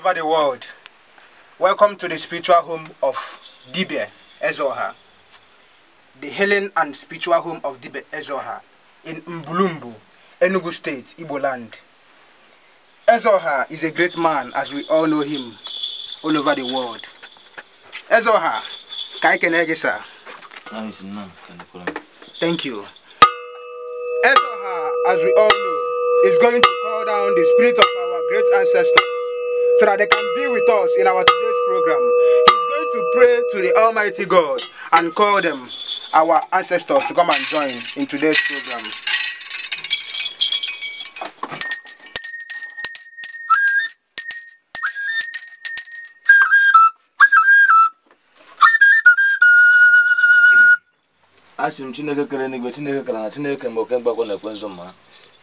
over the world. Welcome to the spiritual home of Dibe Ezoha, the healing and spiritual home of Dibe Ezoha in Mbulumbu, Enugu State, Ibo land. Ezoha is a great man as we all know him all over the world. Ezoha, Kaikenegesa. Thank you. Ezoha, as we all know, is going to call down the spirit of our great ancestors so that they can be with us in our today's program. He's going to pray to the Almighty God and call them, our ancestors, to come and join in today's program. asị m chineke kere n'igwe chineke kere na chineke mgbe oke mgbakọ na-ekwe mma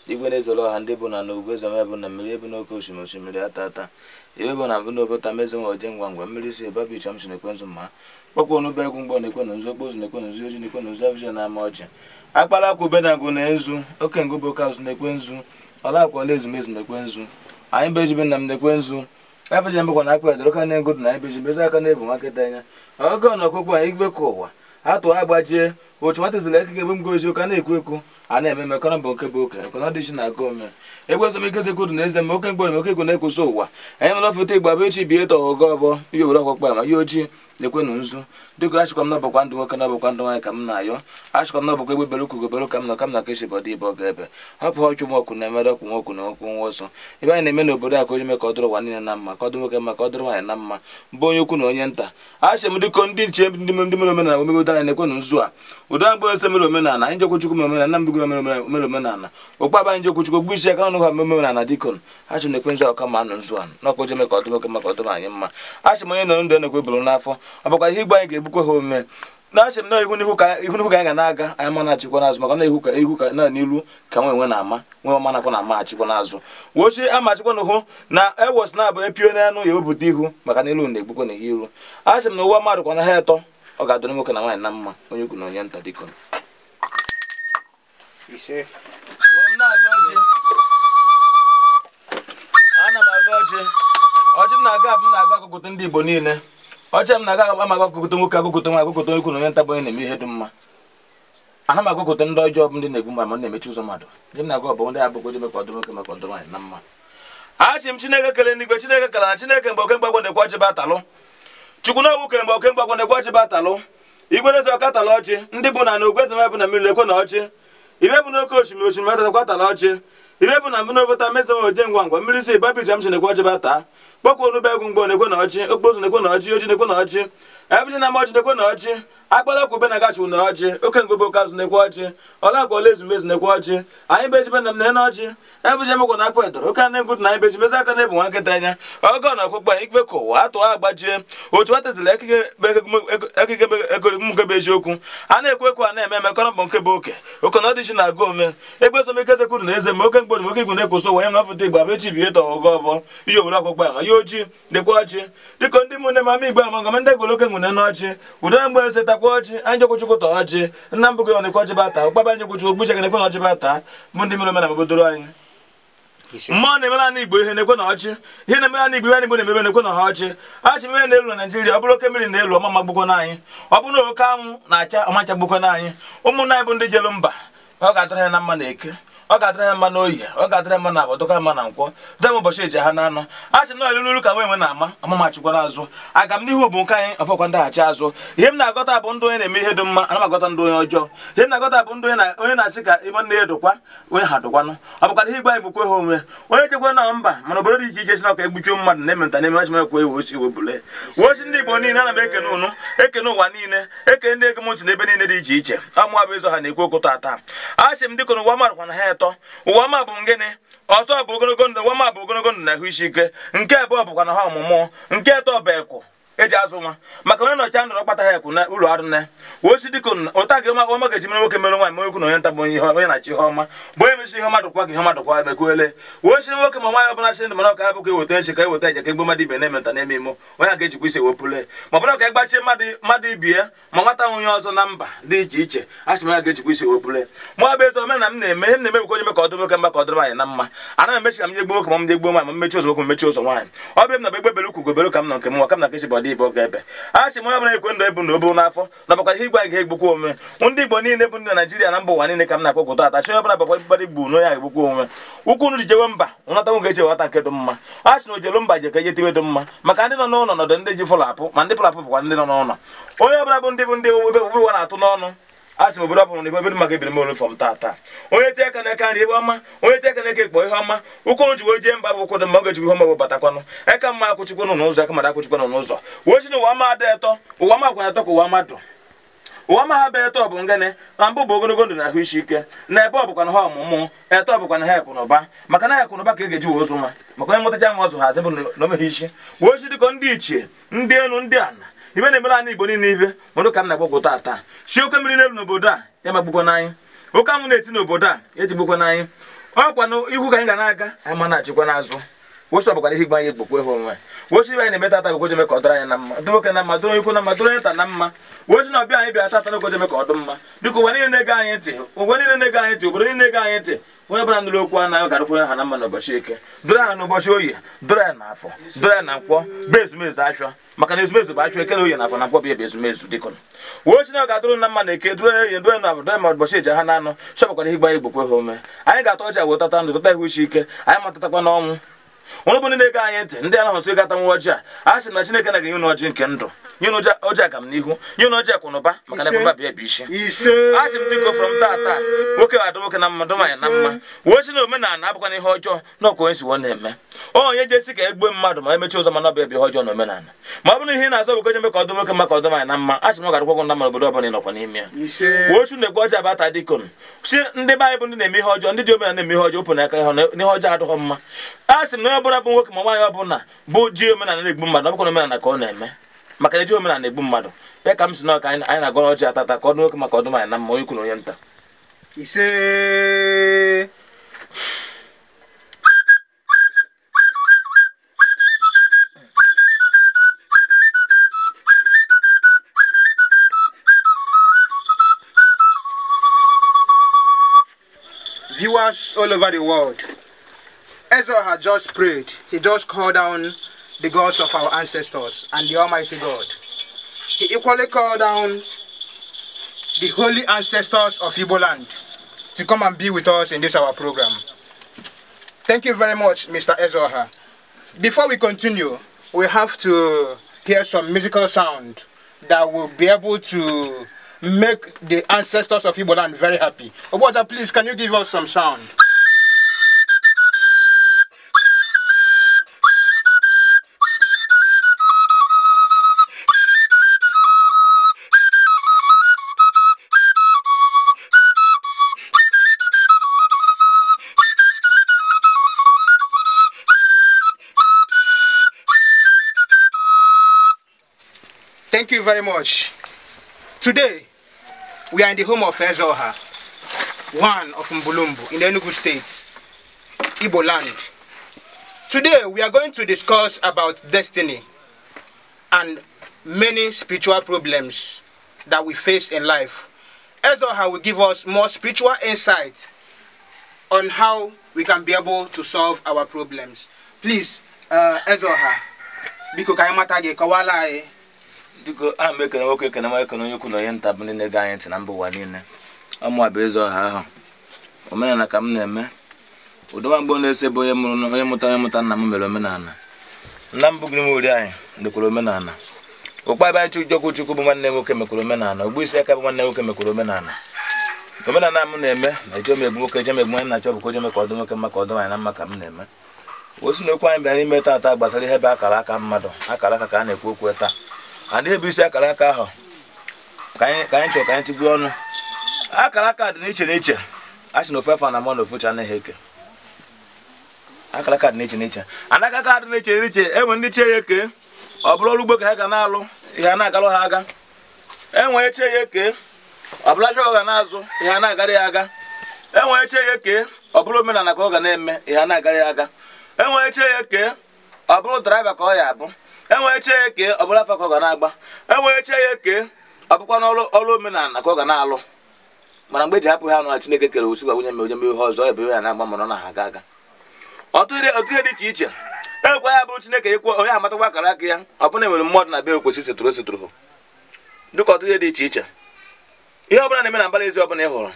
igwe na-ezoro ọha ndị bụ na na ugwu ezome bụ na mmiri ebu n'oke osimiri osimiri ata ata iwe bụ na mbụ na obota mezi nwa oje ngwa ngwa mmiri si ebe bicha m si na-ekwe nzu mma kpọkwa onugbu egwu mgbọ na-ekwe na nzu okpozu na-ekwe na nzu oji na-ekwe na nzu na ama ọjị akpara akwụ ube na ngụ na ezu oke ngụ bụ oke na-ekwe nzu ọla akwa ọla ezumezu na-ekwe nzu anyị bụ ejibe na m na-ekwe nzu afije mbụkwa na akpa edoro na-egodu na anyị bụ ejibe aka na-ebu nwa nkịta anya ọgọ na ọkụkọ a igwe ka ụwa atụ agbajie nwata eke ebe bụ gozi ụka na-ekwu ekwu a na-eme mekọrọ mbụ nke bụ oke isi na agụ ome egbe ezomikeze kwuru na eze m oke mgbe oke na-ekwusa ụwa anyị mana foto igbo abụ echi bie tọ ogo ọbọ ihe obodo ọkpọkpa ma ihe ojii na na nzu dịka achịkwa m n'ọbọkwa ndụ nwoke ndụ nwaanyị ka m na-ayọ achịkwa m n'ọbọkwa egbe bere ukwu ka m nọ ka m na kechi bọdụ ibe ebe hapụ ọchụ m ọkụ na-emere ọkụ na nwa ọsọ ebe na-eme n'obodo a ka ụwa niile na mma ka ọ dị na mma mbụ onye na onye nta m dịkọ ndị nche ndị omenala na nzu a ụdọ agba ose mere omenala anyị jekwuchukwu mere omenala Nnambugo mere omenala okpaba anyị jekwuchukwu gbu isi aka ọnụ ha mere omenala dikon ha chụ na-ekwe nzu ọka ma anụ nzu anụ na ọkpọje meka ọdụm oke maka ọdụm anyị mma a chị m onye nọrọ ndụ enekwe bụrụ n'afọ ọ bụkwa ihe igbe anyị ga-ebukwe ha omume na-achị m na ihu n'ihu ka anyị ga na-aga anyị ma na-achịkwa n'azụ maka na ihu ka ihu ka na n'ilu ka nwe enwe na-ama nwe ọma nakwa na ama achịkwa n'azụ wochi ama achịkwa n'ụhụ na ewos na-abụ epio n'anụ ya wepụta ihu maka na ilu na-egbukwa na ihe ilu achị m na ụwa mmadụ kwa na ha etọ ọ ga-adụrụ nwoke na nwaanyị na mma onye ugwu na onye nta dịkọ m aga ọjị m na-aga abụ m na-aga agụgụta ndị igbo niile ọjị m na-aga ama agụgụta nwoke agụgụta nwa agụgụta onye ukwu na onye nta bụ onye na-eme ihe dị mma ana m agụgụta ndị ọjọọ ndị na-egbu ma m na-emechi ụzọ mmadụ ndị m na-aga ọbụ ndị ọdụ nwoke maka ọdụ nwaanyị na mma m chineke kele n'igwe chineke na chineke mgbe batalụ chukwunogwu kere mgbe okemgbe agwa na-egwe ọjị batalụ igwereze ọkatala ọjị ndị bụ na na ogweze mebụ na mmiri ekwe na ọjị ibe bụ n'oke osimiri osimiri metatala ọjị ibe bụ na mbụ n'obota mezewe ode ngwa ngwa mmiri si babijam si na-egwe ọjị bata kpọkwa onugbu egwu mgbe na-ekwe na ọjị okpozu na-ekwe na ọjị oji na-ekwe na ọjị evji na amaọjị na-ekwe na ọjị agbala kwube na gachiwu na ọjị oke ngobe okazụ na-ekwe ọjị ọla agwa ọla ezumezu na-ekwe ọjị anyị beji be na m na ọjị evji emekwa na akpụ edoro oke na ngwutu na beji mezi aka na ebu nwa nkịta anya oge na ọkpụkpa ikwe ka ụwa atụọ agbajie otu a tezila ekike egomgebe eziokwu a na-ekwe ekwe a na-eme emekọrọ mbọ nkebe oke oke na ọdịchi na-agụ ome egbe ezomike ezekwuru na eze ma oke mgborim oke igwu na-ekwụsị ụwa ya na ọfụta igbo abechi bie tọ ọgọ ọbọ ihe owere ọkpụkpa ama ojii dịkwa ọjị dịka ndị mụne m ama igbe amagama ndị egoloke nwune n'ọjị udara mgbe eze takwa ọjị anyị jekwuchukwu ta ọjị nna mbụ gị ọ dịkwa ọjị bata ụkpaba anyị jekwuchukwu gbuchege nekwe na ọjị bata bụ ndị mere omenala obodoro anyị mmụọ na-emere ana igbo ihe na-ekwe na ọjị ihe na-emere ana igbo ihe na-egbo na-emebe na-ekwe na ha ọjị a mmiri na-elu na naijiria ọ bụrụ oke mmiri na-elu ọma magbukwo na anyị ọ bụrụ na oke anwụ na-acha ọmachagbukwo na anyị ụmụnna anyị bụ ndị jelu mba ọ ga-atara ya na mma na eke ọ ga-adịra ya mma n'oyi ọ ga-adịra mma na abọ dọka mma na nkwọ dem ụbọchị eji ha n'anụ achị sị nọọ elulu ka nwe nwe na-ama amamachikwa n'azụ aga m n'ihu bụ nke anyị ọbọkwa ndaghachi azụ ihe m na-agọta bụ ndị onye na-eme ihe dị mma anamagọta ndị onye ọjọọ ihe m na-agọta bụ ndị onye na-asị ka ime nne ya dụkwa onye ha dụkwanụ ọ bụkwara ihe igwe anyị bụkwa ha onwe onye chekwa na mba mana obodo dị iche iche si na ọka egbuchi mmadụ na ememta na ememachimekwa iwe osi iwe bule wosi ndị igbo niile ana m ekene ụnụ ekene ụwa niile ekene ndị ego m ntị n'ebe niile dị iche iche amụwa bụ ịzọ ha na-ekwu okwu tata a sị m dịka n'ụwa marakwa na ha atọ ụwa ma bụ ngịnị ọzọ bụ ogologo ndụ ụwa ma bụ ogologo ndụ na ahụ isi ike nke abụọ bụkwa na ha ọmụmụ nke atọ bụ eji azụ nwa maka onye nọchi ndọrọ kpata ha ekwu na ụlọ arụ na osi dịka ụta gị ọma ga-eji mere nwoke mere nwaanyị mere okwu na onye nta bụ onye na-achị ihe ọma bụ onye mesi ihe mmadụ kwa gị ihe mmadụ kwa mekwuele osi nwoke ma nwaanyị ọbụla si ndụ mana ọka bụkwa eweta nshi ka eweta eje ka egbu e mmadụ ibe na-eme nta na-eme imo onye ga-ejikwa isi ewepụle ma ọbụla ka ịgbachie e mmadụ ibi ya ma nwata nwunye ọzọ na mba dị iche iche a sị ya ga mụ bụ ezi m na-eme m na onye nwoke mma ka ọ dịrị anyị m nwoke ma m nwaanyị ma mmechi ụzọ nwoke mmechi ụzọ nwaanyị ọ m na ndị igbo ga-ebe a sị m onye ọbụla ekwe ndụ ebu na obu n'afọ na bakwara ihe igwe anyị ga-egbukwa onwe ndị igbo niile bụ ndị naijiria na mba ụwa niile ka m na-akpọ goto atachi onye ọbụla bakwara mgbara igbo na onye ga-egbukwa onwe ukwu nri jewe mba nwata nwoke eche wata nke dị mma a sị na ojelu mba je ka eje tiwe dị mma maka ndị nọ n'ụlọ nọdụ ndị ji fụlapụ ma ndị fụlapụ bụkwa ndị nọ n'ụlọ onye ọbụla bụ ndị bụ ndị obodo na-atụ n'ọnụ a sị m obodo ọbụla na ebe maka ebiri m taa tata onye tie aka n'aka nri ebe ọma onye tie aka n'aka ekpo ihe ọma ụkwụ ji wee jee mba bụ ụkwụ dị mma ọ ga ihe ọma batakwanụ aka e mma akwụchikwa nọ n'ụzọ aka e mara n'ụzọ wee chi na ada ụwa ka ụwa mmadụ ụwa ma ha bụ etọ bụ ngene na mbụ bụ ogologo ndụ na ahụ isi ike na ebe ọ bụkwa na ha ọmụmụ bụkwa na ha maka na ha e ndị ichie ndị elu ndị ibe na-emere anyị igbo niile ibe mmadụ ka m na-agbagwo taa chi oke mmiri n'elu n'obodo a ya magbukwa n'anyị oke anwụ na-eti n'obodo a ejigbukwa n'anyị ọkwa n'ihu ka anyị ga na-aga anyị ma na-achịkwa n'azụ wosi ọbụkwa ihe igbe anyị egbokwu onwe wosi ibe anyị na-emeta ata gogoje ka ọ dịrị anyị na mma dụ nwoke na mma dụrụ ikwu na mma dụrụ nta na mma wosi na ọbịa anyị bịa ata ata ka ọ mma biko ụwa niile na ego anyị ntị ụwa niile na ego anyị ntị obodo niile na ego anyị ntị onye ọbụla nụrụ okwu anaghị garụkwu ha na mma eke ha n'ụbọchị oyi na nkwọ bụ ezumezu achọ maka na ezumezu bụ achọ eke na oyi na afọ na nkwọ bụ ezumezu dịkọ wosi na ọ ga-adụrụ na eke dụrụ dụrụ ụbọchị eji ha na gbanye gbokwe ha anyị ga-ata wee tata ndụ tata anyị matatakwa n'ọnwụ ụlụ bụ ndị na anyị ntị ndị anaghị nso ịgata nwa ọjị a a sị na chineke na ga nye unu ọjị nke ndụ nye unu ọjị aga m n'ihu nye unu ọjị akwụnụba maka na ekwụba bịa bụ isi a sị m biko m taa taa nwoke adụ nwoke na mmadụ nwaanyị na mma wee si na omenala abụkwa na ihe ọjọọ na ọkwa onye si wọ na-eme onye jesi ka mmadu e mmadụ ma emechi ụzọ mana ọ bụ ebe ọjọọ na omenala ma ọ bụrụ ihe na-azọ bụ goje ka ọdụ nwoke maka ọdụ na mma asị m garakwa gụ na mma obodo ọbụla ịnọkwa n'ime ya wochu na-ekwe abata si ndị be anyị bụ na-eme ihe ọjọọ ndị ji omenala na-eme ihe ọjọọ opụ n'aka ihe ọjọọ adịghọ mma a sị m na onye ọbụla bụ nwoke ma nwaanyị ọbụla bụ ji omenala na-egbu mmadụ ka na-eme maka e ji omenala egbu mmadụ ya ka m anyị na-agọrọ ọjọọ atata ka maka ọdụ na mma onye viewers all over the world. Ezra had just prayed. He just called down the gods of our ancestors and the Almighty God. He equally called down the holy ancestors of Igbo land to come and be with us in this our program. Thank you very much, Mr. Ezoha. Before we continue, we have to hear some musical sound that will be able to make the ancestors of Iboland very happy. Oboja, please, can you give us some sound? Thank you very much. Today, we are in the home of Ezoha, one of Mbulumbu in the Enugu State, Ibo land. Today, we are going to discuss about destiny and many spiritual problems that we face in life. Ezoha will give us more spiritual insight on how we can be able to solve our problems. Please, uh, Ezoha, biko kawala biko ana m ekene nwoke ekene nwa ekene onye ukwu na onye nta bụ ndị na anyị ntị na mba ụwa niile ọmụwa bụ ịzọ ọha ahụ omenala ka m na-eme ụdọnwa mgbe ọ na-ese bụ onye mụta onye mụta nna m mere omenala nna m bụgiri m ori anyị mekwara omenala ụkpaba anyị chukwu bụ nwanne nwoke mekwara omenala ogbu isi aka bụ nwanne nwoke mekwara omenala omenala m na-eme na eche megbu nwoke eche na-achọ ọdụ nwoke ọdụ na m na-eme osi na okwu anyị gbasara ihe bụ akara aka mmadụ akara aka ka a na-ekwu okwu taa a na-ebu akara aka ahụ ka anyị chọrọ ka anyị tigbuo ọnụ akara aka dị n'iche n'iche a sị na ofe afọ na mmanụ ofucha anaghị eke akara aka dị n'iche n'iche anaghị aka dị n'iche n'iche enwe ndị chie ya eke ọ bụrụ ọrụ ugbo ka ha ga na-alụ ihe a na-agalụ ha aga enwe chie ya eke ọ bụla aja ga na-azụ ihe a na-agara ya aga enwe echie ya eke ọ bụrụ omenala ka ọ ga na-eme ihe a na-agara ya aga enwe echie ya eke ọ bụrụ draiva ka ọ ya abụ enweche ya eke ọ bụla afa ka ọ ga na-agba enweche ya eke ọ bụkwa n'ọrụ ọrụ omenala ka ọ ga na-alụ mana mgbe eji hapụ ha nụra Chineke kere osikwa nwunye m onye m ihe ọzọ ebe ya na-agba mana ọ na-aga aga ọtụtụ ihe dị iche iche e ekwe ya bụrụ Chineke ịkwụ onye amatakwa akara aka ya ọ bụna enwere mmadụ na be okwesị setụrụ setụrụ dịka ọtụtụ ihe dị iche iche ihe ọbụla na-eme na mbara ezi ọbụla ị hụrụ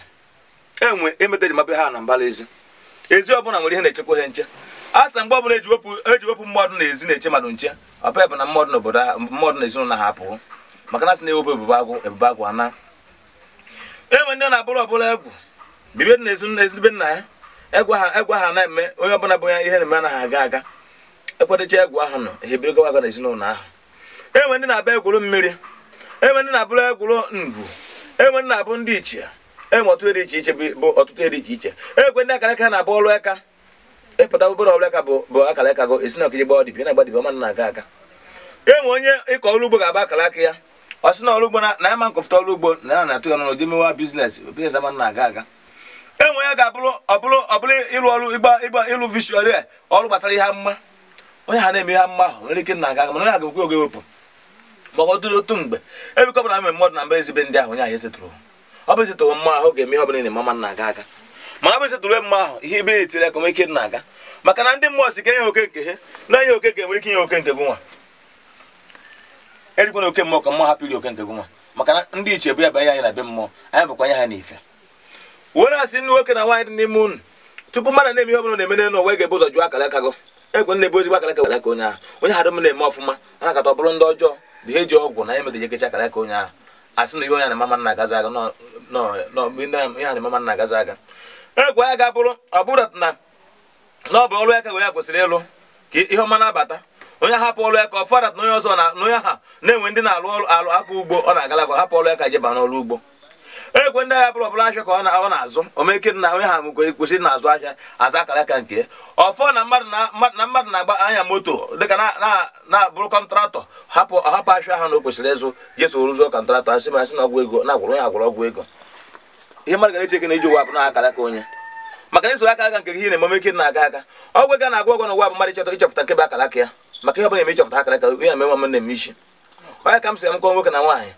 enwe emeta eji mapụ ha na mbara ezi ezi ọbụla nwere ihe na-echekwa ha nche asa mgbe ọbụla eji wepụ mmadụ n'ezi na-eche mmadụ nche ọpa bụ na mmadụ n'obodo mmadụ na ezinụlọ ha apụọ maka na sị na-ewepụ ebube agụ ebube agụ ana enwe ndị na-abụrụ ọbụla egwu bibe na ezi na ezigbe nna ya egwu ha egwu ha na-eme onye ọbụla bụ ya ihe na-eme anaghị aga aga ekwadocha egwu ahụ nọ ihe biri gawaga na ezinụlọ ahụ enwe ndị na abụ egwuru mmiri enwe ndị na-abụrụ egwuru ngwu enwe ndị na-abụ ndị ichie enwe ọtụtụ dị iche iche bụ ọtụtụ dị iche iche enwe ndị akara aka na-abụ ọrụ aka ịpụta obere ọbụla ka bụ bụ akara aka gị esi na ọkụ gba ọdịbi na ọma na-aga aga enwe onye ịkọ ọrụ ugbo ga-agba akara aka ya ọ sị na ọrụ ugbo na ya ma nkọfụta ọrụ ugbo na ya na-atụ ya n'ụlọ gị mewa bizinesi bizinesi ama na-aga aga enwe ya ga-abụrụ ọbụrụ ọbụrụ ịrụ ọrụ ịgba ịgba ịlụ ọrụ gbasara ihe mma onye ha na-eme ihe mma ahụ nwere ike na-aga aga mana onye agakwe oge mgbe e mmadụ na mba ezibe ndị ahụ onye ahụ ọ bụ mma ahụ ga-eme ihe ọbụla na-eme na-aga aga mana bụ isi tụrụ mma ahụ ihe ibe etiri aka ike na-aga maka na ndị mmụọ si ka enye oke nke ha na ihe oke nke nwere ike inye oke nke gị nwa oke mmụọ ka mmụọ hapụ iri oke nke gụnwa nwa maka na ndị iche bụ ya banye anyị na be mmụọ anyị bụkwa anya ha n'ife were asị ndị nwoke na nwaanyị dị n'ime unu tupu mmadụ na-eme ihe ọbụla na-eme n'elu ụwa ga-ebu ụzọ jụọ akara aka gị egwe na-ebu ezigbo akara aka onye ahụ onye m na-eme ọfụma a na ọ ndị ọjọọ bụ ihe ji ọgwụ na aka onye ahụ asị na ihe onye na agazi aga ihe na agazi aga egwu ya ga-abụrụ ọ bụrụ na ọ bụ ọrụ wee ya kwesịrị ịlụ ka ihe ọma na-abata onye hapụ ọlụ aka ka na onye ọzọ na onye ha na-enwe ndị na-alụ alụ aka ugbo ọ na-agalagwa hapụ ọlụ aka ka jeba n'ọrụ ugbo egwe ndị agha bụrụ ọbụla ahịa ka ọ na-azụ omeke na onye ha kwesịrị na-azụ ahịa aza akara aka nke ya ọfọ na mmadụ na-agba anya moto dịka na-abụrụ kọntraktọ hapụ ahịa ahụ na o kwesịrị ịzụ jeso rụzụọ kọntraktọ asị masị na ọgwụ ego na-agwụrụ ya agwụrụ ọgwụ ego ihe mmadụ gara eche ike na iji ụwa abụ na onye maka na isoro aka aka nke gị na emume ike na-aga aga ọgwụ ga na-agwụ ọgwụ na ụwa bụ mmadụ chọta ịchọpụta nke bụ akara ya maka ihe ọbụla eme ịchọpụta na-eme nwa onye ka m sị m nwoke na nwaanyị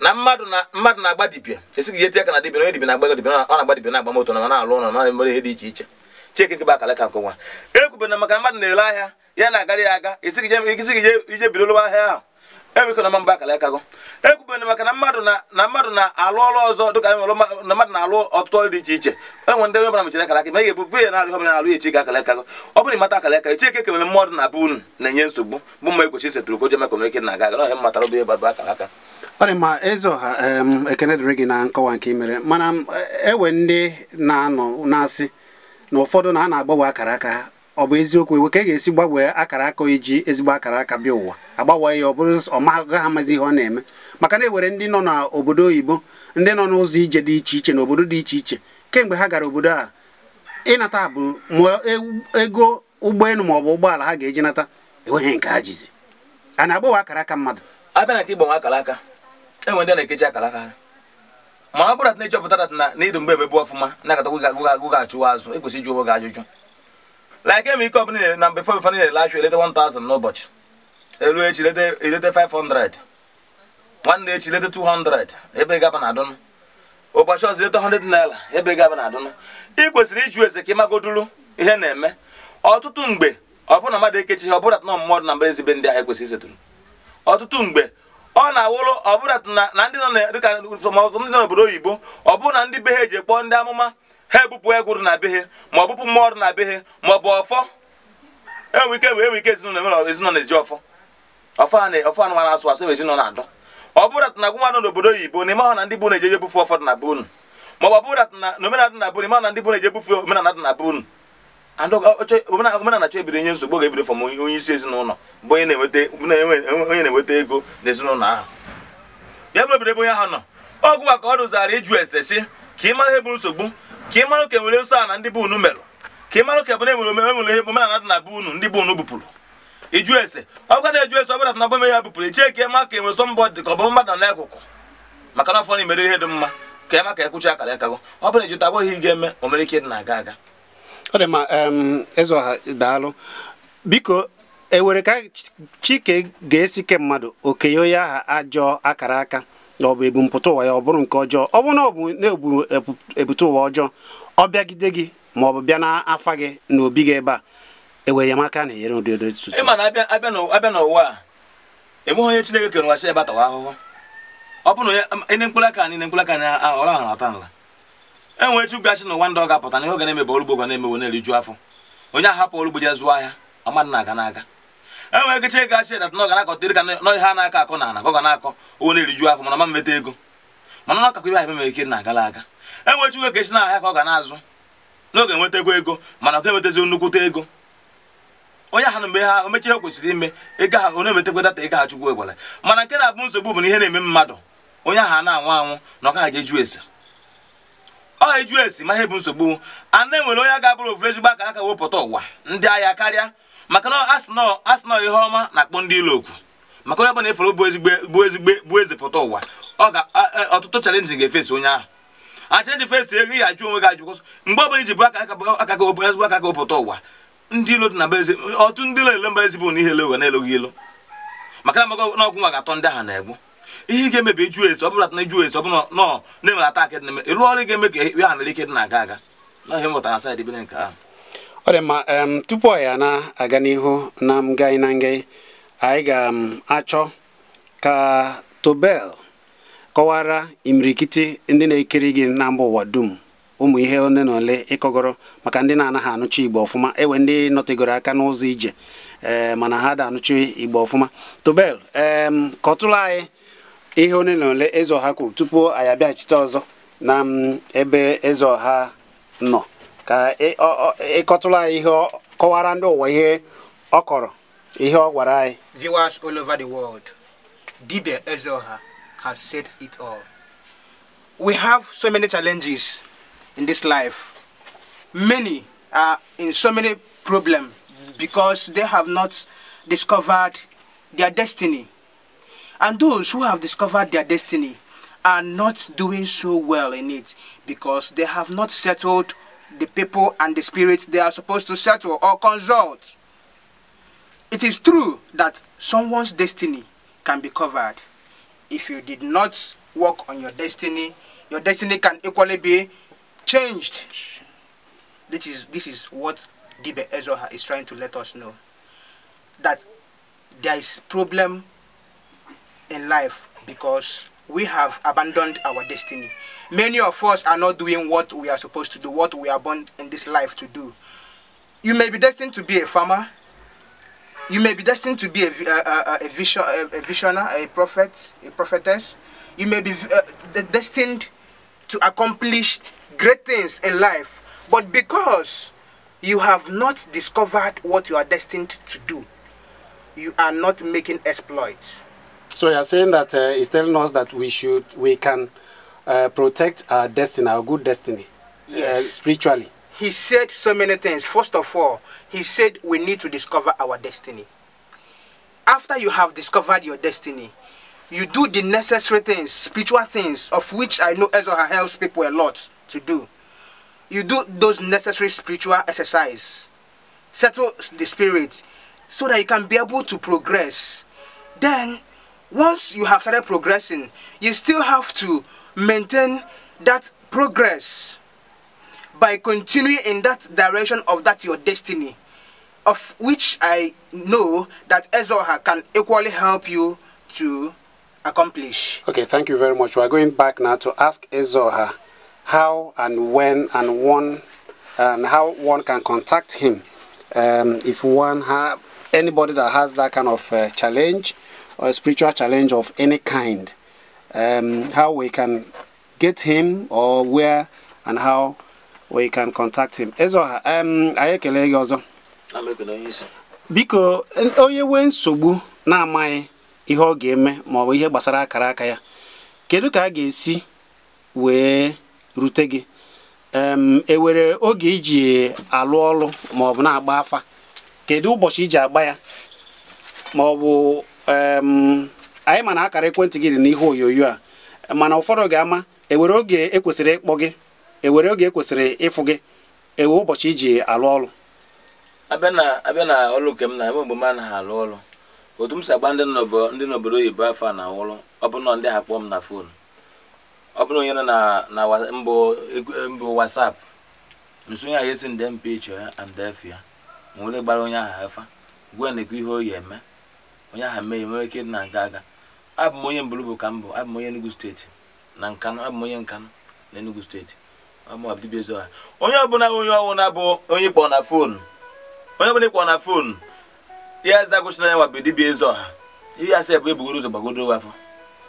na mmadụ na mmadụ na-agba dibịa e ihe eti aka na dibịa onye dibia na-agba dibia ọ na-agba dibia na-agba moto na na-alụ ụlọ na ihe dị iche iche cheke nke bụ aka nke nwa na-ele ahịa ya ya aga e e ije ahịa ahụ emekọna mba akara akago ekwubere maka na mmadụ na mmadụ na-alụ ọrụ ọzọ dịka na mmadụ na-alụ ọtụtụ ọrụ dị iche iche enwe ndị ọbụla mechara akara aka ma ihe ebubu ya na-alụ ọbụla na-alụ echi ka akara akago ọ bụrụ mata akara echi kemere mmadụ na bụ na-enye nsogbu bụ mma egbochi setụrụ ko jemekọ na eke na-aga aga bụ ọ dị mma eze ọha ekene dịrị gị na nkọwa nke imere mana ewe ndị na-anọ na-asị na ụfọdụ na a na-agbanwe akara aka ọ bụ eziokwu iwe ka e ga-esi gbanwee akara aka iji ezigbo akara aka bịa ụwa agbanwe ya ọ bụrụ ọmagụga ha amazi ihe ọ na-eme maka na e ewere ndị nọ n'obodo oyibo ndị nọ n'ụzọ ije dị iche iche na obodo dị iche iche kemgbe ha gara obodo a ịnata bụ ma ego ụgbọelu ma ọ bụ ụgbọala ha ga-eji nata enweghị nke ha a na-agbanwe akara aka mmadụ abịa na nke igbanwe akara aka enwe na-ekechi akara aka ha ma ọ bụrụ na ịchọpụtara na ịdụ mgbe ebe bụ ọfụma na-akatakwa gụga achụwa azụ ekwesị ịjụ onwe ajụjụ like m ike ọbụla na mgbe fọbifọ na-ele achụ eleta 1000 n'ụbọchị elu echi eleta 500 nwanne echi eleta 200 ebe gaba na adụnụ ụbọchị ọzọ eleta 100 naira ebe gaba na adụnụ ị kwesịrị ịjụ eze ka ịmagodulu ihe na-eme ọtụtụ mgbe ọ bụrụ na mmadụ ekechighị ọ bụrụ atụ na mmadụ na mbara ezigbe ndị ahụ ekwesịrị isetụrụ ọtụtụ mgbe ọ na-awụrụ ọ bụrụ na ndị nọ n'obodo oyibo ọ bụrụ na ndị be ha eji ekpọọ ndị amụma ha ebupụ egwuru na be ma ọ bụpụ ọrụ na be ma ọ bụ ọfọ enwe ike enwe ike ezinụlọ na-eji ọfọ ọfọ anụmanụ asụ asụ ezinụlọ na-adọ ọ bụrụ na agwụnwa nọ n'obodo oyibo na ịmahụ na ndị bụ na eji eje ebufe ọfọ na ma ọ bụrụ na omenala na ịmahụ na ndị bụ na-eje ebufe omenala dị na be omenala ebido nye nsogbu ebido isi ezinụlọ bụ onye na-enweta ego na ezinụlọ ahụ ya onye ahụ nọ ọgụ maka ọ ịjụ ese si ka ị mara ihe nsogbu ka ị mara ka e nwere nsọ a na ndị bụ unu merụ ka ị mara ka bụ e na enwere omenwere ihe omenala dị na bụ unu ndị bụ unu bupụrụ ịjụ ese ọ bụkwa na eju ese ọbụla na bụme ya bupụrụ ichee ka ịma ka enwere sọ mbọ dị ka ọ bụ mmadụ na akụkụ maka na ọfọ na imere ihe dị mma ka ịma ka ekwuchi akara akago ọ bụla ejuta abụghị ị ga-eme o nwere ike dị na-aga aga ọ dị mma eze ọha daalụ biko ewere ka chike ga-esi ke mmadụ okenye onye aha ajọ akara aka ọ bụ ebumpụta ụwa ya ọ bụrụ nke ọjọọ ọ bụrụ na ọ bụ na-ebu ebute ụwa ọjọọ ọ bịagide gị ma ọ bụ bịa n'afa gị na obi gị ebe a ewe enyemaka na enyere ụdị edozi ịma na abịa n'ụwa a enweghị onye Chineke kere ụwa si ebatawa ahụhụ ọ bụrụ na onye um, mkpụrụ aka niile mkpụrụ aka na ọrụ ahụ na-ata nla enwere etu gasị n'ụwa ndị ọ ga-apụta na ihe ọ ga na-emebe ọrụ ugbo ga na-emewo na-eriju afọ onye ahapụ ọrụ ugbo ya zụọ ahịa ọmadụ na-aga n'aga enwere ike chee gachi dat na ọganakọtịrị ka nọ ihe a na-akọ akọ na ana ka ọ ga na-akọ owo na-eriju afọ mana ma mmeta ego mana na ọkakọ ihe ahụ ememe ike na agala aga enwechi uwe ka esi na ahịa ka ọ ga na-azụ n'oge enwetakwa ego mana ọ ga-enwetazi nnukwute ego onye ahụ mgbe ha omechi kwesịrị ime ego ha onye emetakwa data ego ha chukwu egwere mana nke na-abụ nsogbu bụ na ihe na-eme mmadụ onye ahụ na-anwụ anwụ na ọ gaghị eju esi ọ eju esi ma ihe bụ nsogbu a na-enwere onye ga-abụrụ ofure ezigbo aka aka wepụta ụwa ndị agha karịa maka na asịnọ asịnọ ihe ọma na-akpọ ndị ilo okwu maka onye ọbụla efere bụ ezigbo bụ ezigbo bụ eze pụta ụwa ọ ga ọtụtụ chalenji ga-efesi onye ahụ achenji fesi ego ihe ajụ onwe gị ajụ kwụsị mgbe ọbụla iji bụ aka aka ezigbo aka gị pụta ụwa ndị ilo dị na eze ọtụ ndị ilo ele mba ezigbo na ihe ele ụwa na-eloghị ilo maka na maka ọgwụ nwa ga-atọ ndị ahụ na-egbu ihe ga-emebi eju esi ọbụla na eju esi ọbụla nọ na-enwere ata dị na eme ịlụ ọrụ ga-eme ka ya ha mere ike dị na-aga aga na ihe mụtara na saịdị bere nke ahụ ọ dị mma tupu anyị na-aga n'ihu na ngai na ngai anyị ga-achọ ka Tobel kọwara imirikiti ndị na-ekiri gị na mba ụwa dum ụmụ ihe ole na ole ịkọgoro maka ndị na-anaghị anụcha igbo ọfụma ewe ndị nọtegoro aka n'ụzọ ije ee mana ha da anụchi igbo ọfụma Tobel ee kọtụrụ anyị ihe ole na ole eze ọha kwuru tupu anyị abịaghachite ọzọ na ebe eze ọha nọ ka ịkọtụla e, e ihe kọwara ndị ụwa ihe ọ kọrọ ihe ọ gwara anyị viewers all over the world dibia ezeoha has said it all we have so many challenges in this life many are in so many problems because they have not discovered their destiny and those who have discovered their destiny are not doing so well in it because they have not settled the people and the spirits they are supposed to settle or consult. It is true that someone's destiny can be covered. If you did not work on your destiny, your destiny can equally be changed. This is, this is what Dibe Ezoha is trying to let us know. That there is problem in life because we have abandoned our destiny. Many of us are not doing what we are supposed to do, what we are born in this life to do. You may be destined to be a farmer. You may be destined to be a, a, a, uh, uh, uh, a vision, a, a prophet, a prophetess. You may be uh, destined to accomplish great things in life. But because you have not discovered what you are destined to do, you are not making exploits. So you are saying that uh, it's telling us that we should, we can uh, protect our destiny, our good destiny, uh, yes. uh, spiritually. He said so many things. First of all, he said we need to discover our destiny. After you have discovered your destiny, you do the necessary things, spiritual things, of which I know Ezra helps people a lot to do. You do those necessary spiritual exercise, settle the spirit, so that you can be able to progress. Then once you have started progressing, you still have to maintain that progress by continuing in that direction of that your destiny, of which I know that Ezoha can equally help you to accomplish. Okay, thank you very much. We are going back now to ask Ezoha how and when and one and how one can contact him um, if one have anybody that has that kind of uh, challenge or spiritual challenge of any kind, um, how we can get him or where and how we can contact him. Ezo um, anyị gị ọzọ. Biko, onye nwee nsogbu na-amaghị ihe ọ ga-eme maọbụ ihe gbasara akara aka ya, kedu ka a ga-esi wee rute gị? Um, ewere oge iji alụ ọlụ maọbụ na-agba afa kedu ụbọchị iji agba ya maọbụ. anyị mana akara ekwentị gị dị n'ihe onyonyo a mana ụfọdụ ga-ama ewere oge ekwesịrị ịkpọ gị ewere oge ekwesịrị ịfụ gị ewe ụbọchị iji alụ ọrụ abịa na na ọlụ nke m na eme mgbe m anaghị alụ ọrụ otu m si agba ndị ndị n'obodo oyibo afọ na-awụrụ ọ bụ na ndị ha kpọọ m na fon ọ bụrụ onye nọ na mbụ wasap nso onye ahụ esi nde mpa iche ya and efe ya gbara onye ahụ efa, gwa na-ekwu ihe oyi eme onye aha mee nwere ike na aga aga abụ m onye mbụrụ bụ ka m bụ abụ m onye Enugu steeti na Nkanụ abụ m onye Nkanụ na Enugu steeti dibịa ezo onye ọbụla onye ọwụna bụ onye ịkpọ na foonu onye ọbụla ịkpọ na foonu ya eze gosi na ya nwabụ dibịa ezo ha ihe asị bụ ebugoro ụzọ gbagodo afọ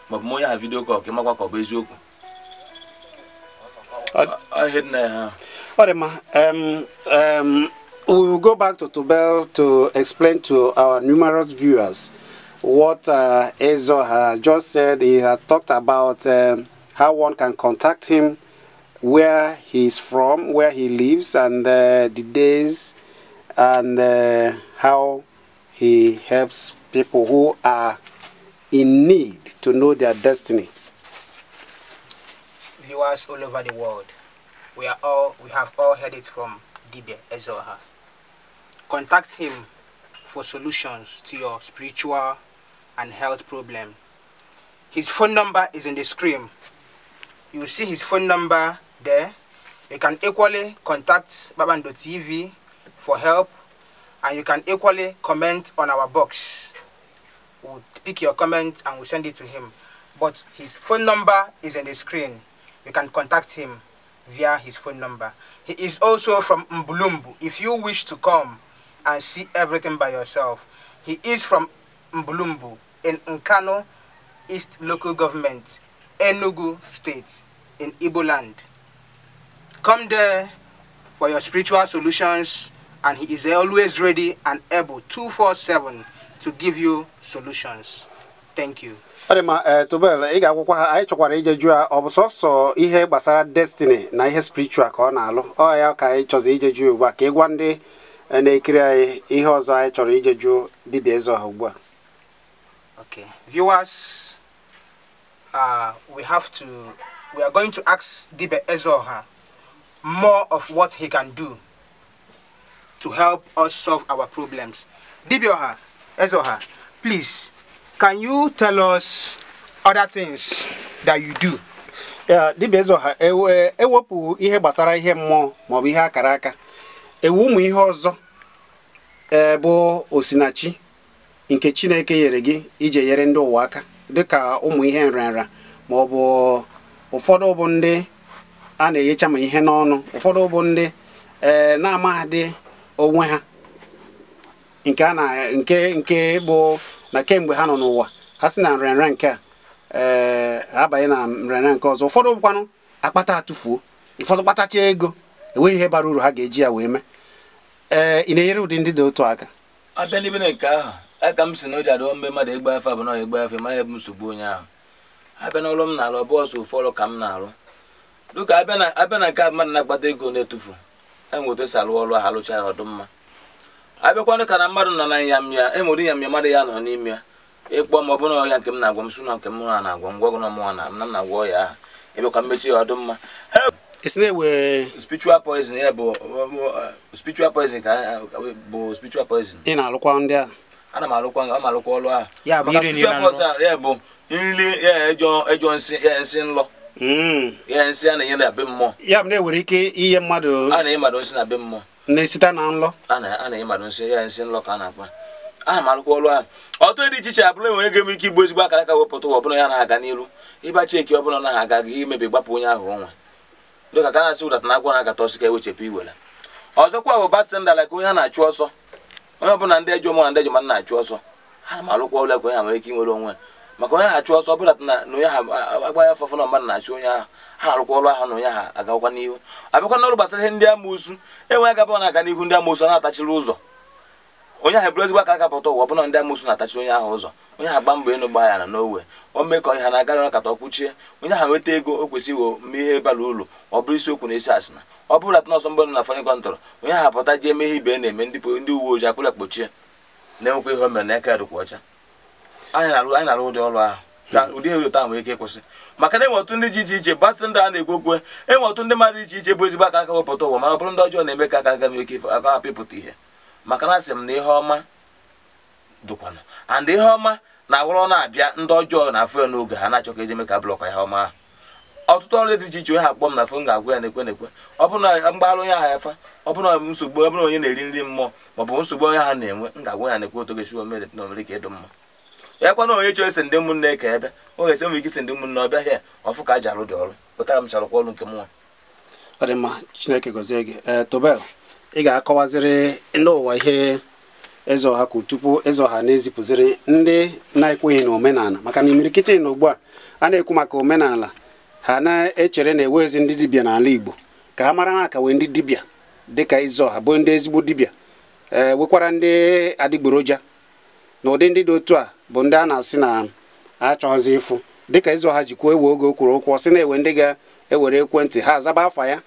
maọbụ m onye aha vidio kọl ka ịmakwa ka ọ bụ eziokwu ọ dị mma we will go back to Tubel to explain to our numerous viewers what uh, Ezo has just said. He has talked about um, how one can contact him, where he is from, where he lives, and uh, the days, and uh, how he helps people who are in need to know their destiny. Viewers all over the world, we are all we have all heard it from Dibe Ezoha. Contact him for solutions to your spiritual and health problem. His phone number is in the screen. You will see his phone number there. You can equally contact Baban.tv TV for help and you can equally comment on our box. We'll pick your comment and we'll send it to him. But his phone number is on the screen. You can contact him via his phone number. He is also from Mbulumbu. If you wish to come and see everything by yourself. He is from Mbulumbu in Nkano East Local Government, Enugu State, in Ibo land. Come there for your spiritual solutions and he is always ready and able 247 to give you solutions. Thank you. ọ dị ma eh, tubel ị ga-akwụkwọ ha anyị chọkwara ije jụọ ihe gbasara destiny na ihe spiritual ka ọ na-alụ ọ ya ka anyị chọzi ije jụọ ugbu a ka na-ekiri anyị ihe ọzọ anyị chọrọ ije jụọ dibịa eze ọha ugbu a ok viewers uh, we have to we are going to ask dibịa eze ọha more of what he can do to help us solve our problems dibịa ọha eze ọha please can you tell us other things that you do uh, dibịa eze ọha ewepụ e, e ihe gbasara ihe mmụọ maọbụ ihe akara aka ewu ụmụ ihe ọzọ e, bụ osinachi nke chineke nyere gị iji nyere ndị ụwa aka dịka ụmụ ihe nrịanrịa ma ọ bụ ụfọdụ bụ ndị a na enyecha ma ihe n'ọnụ ụfọdụ bụ ndị ee na-amaghadị onwe ha nke a na nke nke bụ na kemgbe ha nọ n'ụwa ha si na nrịanrịa nke a ee abanye na nrịanrịa nke ọzọ ụfọdụ bụkwanụ akpata atụfuo ụfọdụ kpatacha ego enweghị ihe bara uru ha ga-eji ya wee mee ee eh, ị na-enyere ụdị ndị dị otu aka abịa n'ebe na nke ahụ aka m si na o ji adịọ mgbe mmadụ igba afe abụ na igba afe mara ebe nsogbu onye ahụ abịa n'ọrụ m na-arụ ọbụ ọsọ ofu ọrụ ka m na-arụ dịka abịa na nke mmadụ na-akpata ego na-etufu e e si alụ ọrụ ahụ alụcha ya ọdụ mma abịakwanụ ka na mmadụ nọ na nyamya enwere nyamya mmadụ ya nọ n'ime ya ịkpọ m ọ bụrụ ọya nke m na-agwa m sụ na nke m na-agwa m gwagụ na mụnwa na m na-agwa ọya ahụ ịbịakwa mmechi ya ọdụ mma esi na-ewe. spiritual poison ya bụ uh, spiritual poison ka uh, uh, bụ spiritual poison ị na-alụkwa ndị a ana m alụkwa ọ ma alụkwa ọlụ a. ya bụ nri ejọ nsị nlọ ya nsị a na-enye na be mmụọ ya bụ na-ewere ike iye mmadụ a na-enye mmadụ nsị na be mmụọ na-esite na nlọ a na-enye mmadụ nsị ya nsị nlọ ka a na-akpa ana m alụkwa ọlụ a. ọtụ dị iche iche abụla enwere ego m ike igbu ezigbo akara ka wepụta ụwa ọbụla ya na-aga n'elu ịba cheki ọbụla na-aga gị imebi gbapụ onye ahụ nwa dịka ka na-asị ụdata na agwa na-akata ọsị ka ewechepụ iwere ọzọkwa bụ batịndala ka onye a na-achụ ọsọ onye ọbụla ndị ejọ mụ na ndị ejọ na-achụ ọsọ ha na alụkwa ụlọ ka onye ha nwere ike inwere onwe maka onye ha achụ ọsọ ọbụlata na onye ha agbaghị afọ na mmadụ na-achụ onye ahụ ha na-arụkwa ọrụ ahụ na onye ha agakwa n'ihu abịakwa n'ọrụ gbasara ihe ndị amụsụ enweghị agaba na-aga n'ihu ndị amụsụ na-atachiri ụzọ onye ahụ bụrụ ezigbo aka akapụta ụwa ọbụna ndị amụsụ na-atachi onye ahụ ụzọ onye ahụ gba mbọ ịnụ gba ya na n'owe o mee ka ọhịa na-agara ọkata ọkwụchie onye ahụ nweta ego o kwesịrị iwo mme ihe bara ụlọ ọ bụrụ isiokwu na esi asịna ọ bụrụ atụ n'ọsọ mgbọdụ na fọnị kọntọrọ onye ahụ apụta ji emeghe ihe ibe na-eme ndị uwe ojii akpụrụ akpọchie na-enwekwa ihe o mere na eke dịkwa ọcha anyị na-arụ ụdị ọrụ ahụ ka ụdị ihe taa nwee ike ịkwụsị maka na enwe otu ndị dị iche iche batị ndị a na-ekwu okwu enwe e otu ndị mmadụ iche iche bụ ezigbo aka aka wepụta ụwa mana ọ bụrụ ndị ọjọọ na-eme ka aka aga nwee ike aka ihe maka na asị m na ihe ọma dụkwanụ and ihe ọma na-awụrụ na-abịa ndị ọjọọ na afọ ya n'oge ha na-achọ ka eji eme ka blọkwa ihe ọma ahụ ọtụtụ ọrụ dị iche iche onye ha akpọ m na fon ga-agwa ya na-ekwe na-ekwe ọ bụrụ na onye ahụ efa ọ bụrụ na nsogbu onye na-eri nri mmụọ ma ọ bụ nsogbu onye ha na-enwe m ga-agwa ya na-ekwe otu na omere ka ịdụ mma ekwe na onye chọọ isi ndị ka ebe esi ike isi ndị ọ ọfụ ka a ji ọrụ m ị ga-akọwaziri n'ụwa ihe eze ọha kwuru tupu eze ọha na-ezipụziri ndị na-ekweghị na omenala maka na imirikiti na ugbu a a na-ekwu maka omenala ha na-echere na eze ndị dibịa n'ala Igbo ka ha mara na wee ndị dibịa dịka eze ọha bụ ndị ezigbo dibịa ee nwekwara ndị adịgboroja na ụdị ndị dị otu a bụ ndị a na-asị na achọghịzi ịfụ dịka eze ọha jikwuo ewe oge okwuru ụkwụ ọ sị na-ewe ndị ga-ewere ekwentị ha azaba afa ya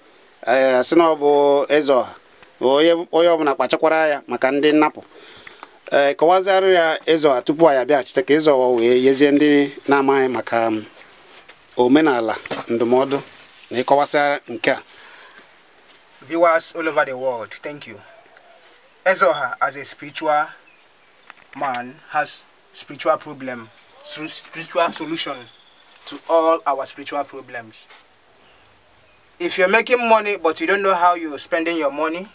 ee asị na ọ bụ eze ọha onye ọbụla kpachakwara ya maka ndị nnapụ ee eh, kọwazịarụ ya ịzọ tupu anyị abịaghachite ka ịzọ wee yezie ndị na-amaghị maka mm, omenala ndụmọdụ na ịkọwasị nke a viewers all over the world thank you Ezoha as a spiritual man has spiritual problem spiritual solution to all our spiritual problems if you're making money but you don't know how you're spending your money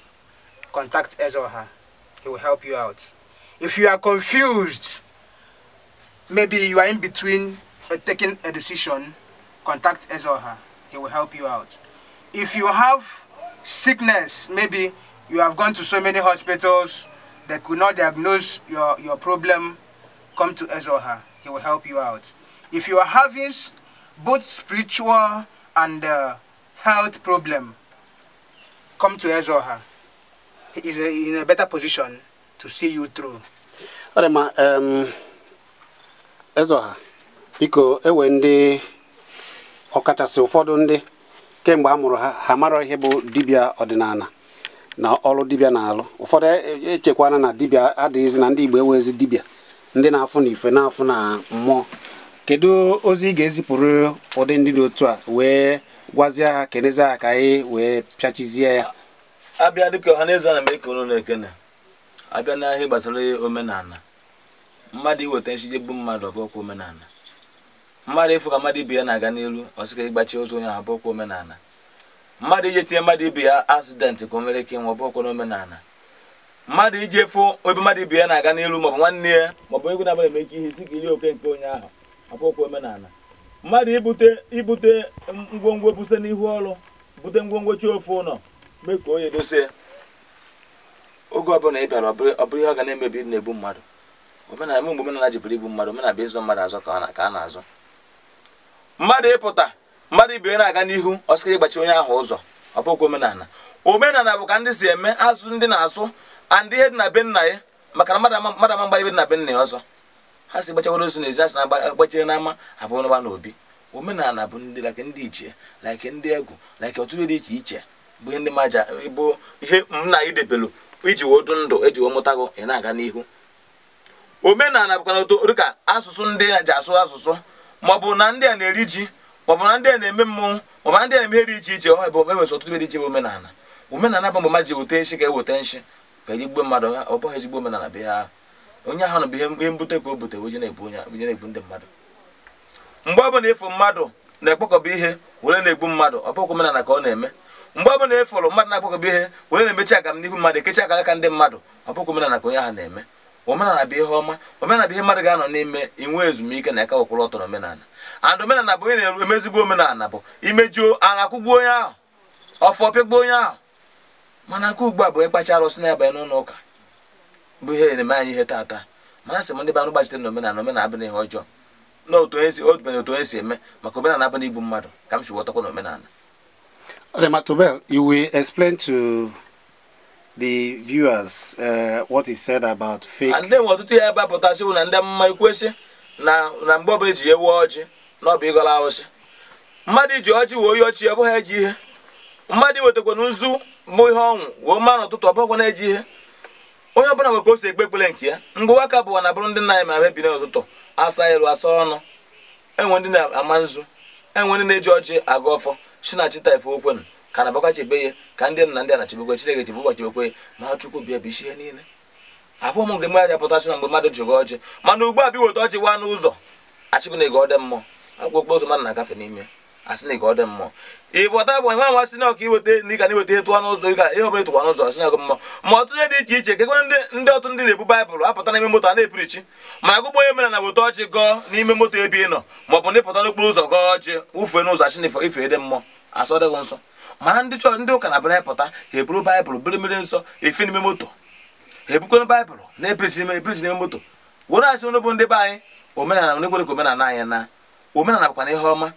contact us He will help you out. If you are confused, maybe you are in between uh, taking a decision, contact us He will help you out. If you have sickness, maybe you have gone to so many hospitals, they could not diagnose your, your problem, come to us He will help you out. If you are having both spiritual and uh, health problem, come to us is in a better position to see you through. ọ dị mma Ezeoha biko ewe ndị ọkachasị ụfọdụ ndị kemgbe a mụrụ ha ha mara ihe bụ dibịa ọdịnala na ọlụ dibia na-alụ ụfọdụ echekwana e na dibia adịghịzị na ndị Igbo ewezi dibia ndị na-afụ na ife na-afụ na mmụọ kedu ozi ị ga-ezipụrụ ụdị ndị dị otu a wee gwazie ha kenezie ha ka anyị wee pịachizie ya abịa dịka ọha na na eke unu na-ekene abịa n'ahịa gbasara omenala mmadụ iweta nchiji bụ mmadụ ọbụkwa omenala mmadụ ịfụ ka mmadụ ibe ya na-aga n'elu ọsịka ịgbachi ozu onye ahụ ọbụkwa omenala mmadụ iji tinye mmadụ ibe ya asidentị ka o nwere ike ịnwe ọbụkwa mmadụ iji efu ebe mmadụ ibe ya na-aga n'elu maọbụ nwanne ya maọbụ egwu na-abara eme ike ihe si ka iri oke nke onye ahụ ọbụkwa omenala mmadụ ibute ibute ngwongwo buse n'ihu ọrụ bute ngwongwo chi ofe ụlọ mee ka onye dozie oge ọbụla ị bịara ọ bụrụ ihe ọ ga na-emebi na ebu mmadụ omenala mgbe omenala ji bụrụ igbu mmadụ omenala bụ ịzụ mmadụ azụ ka a na-azụ mmadụ ịpụta mmadụ ibe na-aga n'ihu ọsịka ịgbachi onye ahụ ụzọ ọ bụghị omenala omenala bụ ka ndị si eme azụ ndị na azụ andị ihe dị na be nna ya maka na mmadụ ama mgbara ibe dị na be nna ya ọzọ ha si gbachakwara ozu n'ezi asị na-agbachire n'ama abụọ n'ụba n'obi omenala bụ ndị like ndị ichie like ndị egwu like ọtụtụ dị iche iche bụ ndị maja bụ ihe m na idebelu iji wodu ndụ eji wee ị na-aga n'ihu omenala bụkwa dịka asụsụ ndị a ji asụ asụsụ maọbụ na ndị a na-eri ji maọbụ na ndị a na-eme mmọnwụ maọbụ na ndị a na-eme ihe dị iche iche ọ bụ enwere ọtụtụ dị iche bụ omenala omenala bụ mgbe ji e weta nchi eweta nshi ka eji gbuo mmadụ ọ bụghị ezigbo omenala bụ onye ahụ bụ na ndị mmadụ bụla mmadụ na-ekpokọba ihe were na-egbu mmadụ ọ bụghị omenala ka ọ na-eme mgbe ọbụla ị e fụrụ mmadụ na-akpọkọba ihe were na-emechi aga m n'ihu mmadụ ekechi aka aka ndị mmadụ ọ bụghị omenala ka onye ahụ na-eme omenala bụ ihe ọma omenala bụ ihe mmadụ ga-anọ n'ime inwe ezumike na ịkawakwụrụ ọtọ omenala and omenala bụ onye na-eru emezigbo omenala bụ imejuo ara akwụgbuo onye ahụ ọfọ pịgbuo onye ahụ mana nke ugbu a bụ ịkpacha arụsị na-abanye n'ụlọ ụka bụ ihe na-eme anyị ihe taata mana sị m ndị be gbachitere na omenala omenala ihe ọjọọ na otu onye si otu onye si eme maka omenala abụghị igbu mmadụ ka m si ghọtakwa na omenala Rematobel, you will explain to the viewers uh, what is said about fake. And ọtụtụ ihe ebe apụtasịwụ na ndị mma ikwesị na na mgbe ọbụla eji ewu ọjị na ọ bụ ịgọla awụsị mmadụ iji ọjị wee oyi ọchị ọbụghị eji ihe mmadụ wetakwana nzu bụ ihe ọnwụ wee mma n'ụtụtụ ọbụghịkwana eji ihe onye ọbụla nwere ka o ekpe ekpere nke ya ngụwa ka bụwa na bụrụ ndị na-eme ebi n'ụtụtụ asa elu asa ọnụ enwe ndị na-ama nzu enwe ndị na-eji ọchị aga ọfọ chinachi ife okwenu ka na chebe ya ka ndị nna ndị anachebekwe chineke chebe ụbọchị bekwe ma chukwu bịa bụ ihe niile abụọ m mgbe mmadụ apụtasị na mgbe mmadụ jigo ọchị mana ugbu a bi weta ọchị waa n'ụzọ achịkụ na ego ọdị mmụọ akwụkwọ okporo ụzọ mmadụ na-agafe n'ime asị na ọ dị mmụọ ịbọta bụ nwa masị na ọka iweta ndị ka na-eweta ịtụ ọnụ ụzọ ịga ihe ọbụla ịtụkwa n'ụzọ asị na ọgụ mmụọ ma ọtụtụ ihe dị iche iche kekwe ndị ọtụ ndị na-ebu baịbụl apụta n'ime moto a na-epirichi ma agụgbọ onye mere na weta ọchị gọọ n'ime moto ebe ị nọ ma ọ bụ ndị pụta n'okporo ụzọ gọọ ọchị wụfee n'ụzọ asị na ife dị mmụọ asọ dịghị nsọ mana ndị chọọ ndị ụka na bara pụta ha eburu baịbụl biri mmiri nsọ efe n'ime moto ha ebukwana baịbụl na-epirichi n'ime moto were asị n'obu ndị be anyị omenala na ekwereke omenala na omenala bụkwa ihe ọma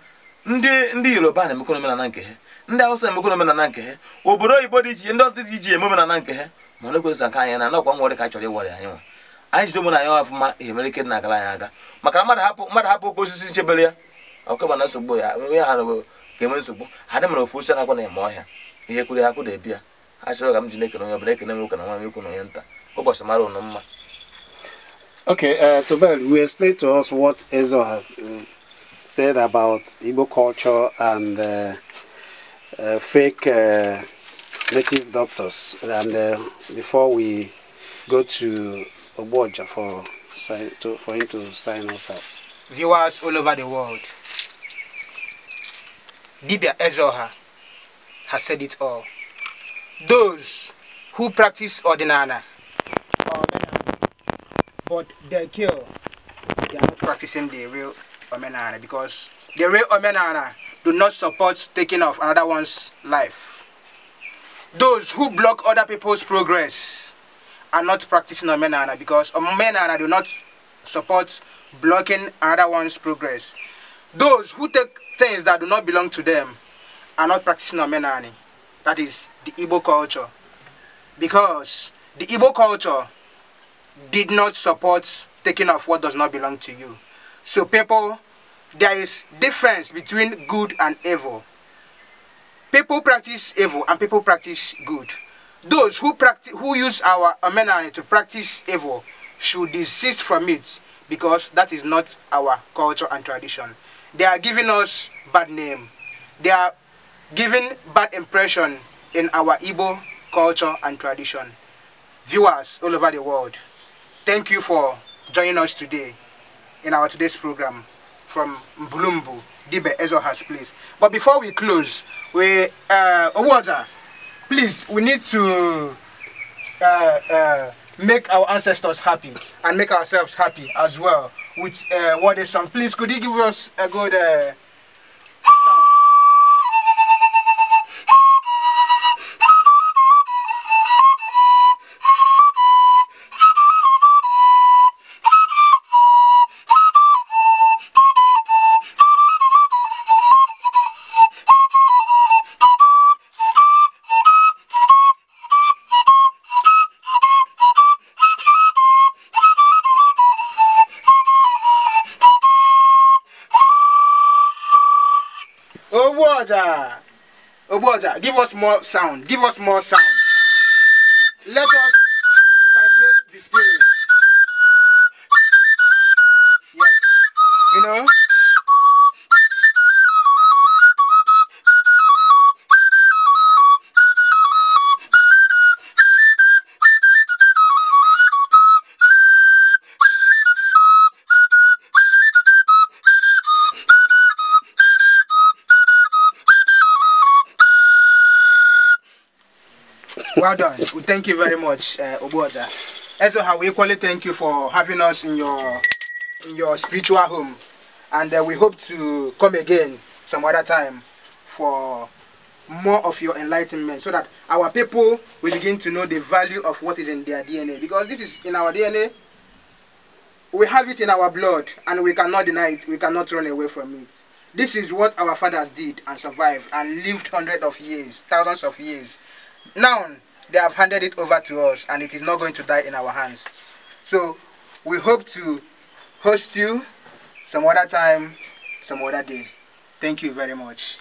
ndị ndị yoruba na omenala nke ha ndị awụsa emekọ omenala nke ha obodo oyibo dị iche ndị ọtụtụ dị iche eme omenala nke ha ma ọ na nke anya na nakwa nwere ka a chọrọ ịwara anyị nwa anyị jide omenala ya ọfụma ihe mere ike na agara anyị aga maka na mmadụ hapụ mmadụ hapụ oke osisi nchebere ya ọkụ mana nsogbu ya onye ha ga nsogbu ha dị mara ofu osi na eme ọhịa ihe kwuru ya kwụ ya a ga m ji na-ekene onye ọbụla ekene nwoke na na ụbọchị mara ụnụ mma uh, said about Igbo culture and uh, uh, fake uh, native doctors. And uh, before we go to Oboja for, to, for him to sign us up. Viewers all over the world, Dibia Ezoha has said it all. Those who practice ordinana but they kill, they are not practicing the real Omenana because the real Omenana do not support taking off another one's life. Those who block other people's progress are not practicing Omenana because Omenana do not support blocking another one's progress. Those who take things that do not belong to them are not practicing Omenana. That is the Igbo culture. Because the Igbo culture did not support taking off what does not belong to you. So people there is difference between good and evil. People practice evil and people practice good. Those who practice who use our amenity to practice evil should desist from it because that is not our culture and tradition. They are giving us bad name. They are giving bad impression in our Igbo culture and tradition. Viewers all over the world, thank you for joining us today in our today's program from Mbulumbu, Dibe Ezoha's place. But before we close, we uh, Owaja, please, we need to uh, uh, make our ancestors happy and make ourselves happy as well with uh, what is song. Please, could you give us a good uh, give us more sound. Give us more sound. Let us Well done. Well, thank you very much, uh, Also, how we equally thank you for having us in your in your spiritual home, and uh, we hope to come again some other time for more of your enlightenment so that our people will begin to know the value of what is in their DNA because this is in our DNA we have it in our blood and we cannot deny it we cannot run away from it this is what our fathers did and survived and lived hundreds of years thousands of years now they have handed it over to us and it is not going to die in our hands. So we hope to host you some other time, some other day. Thank you very much.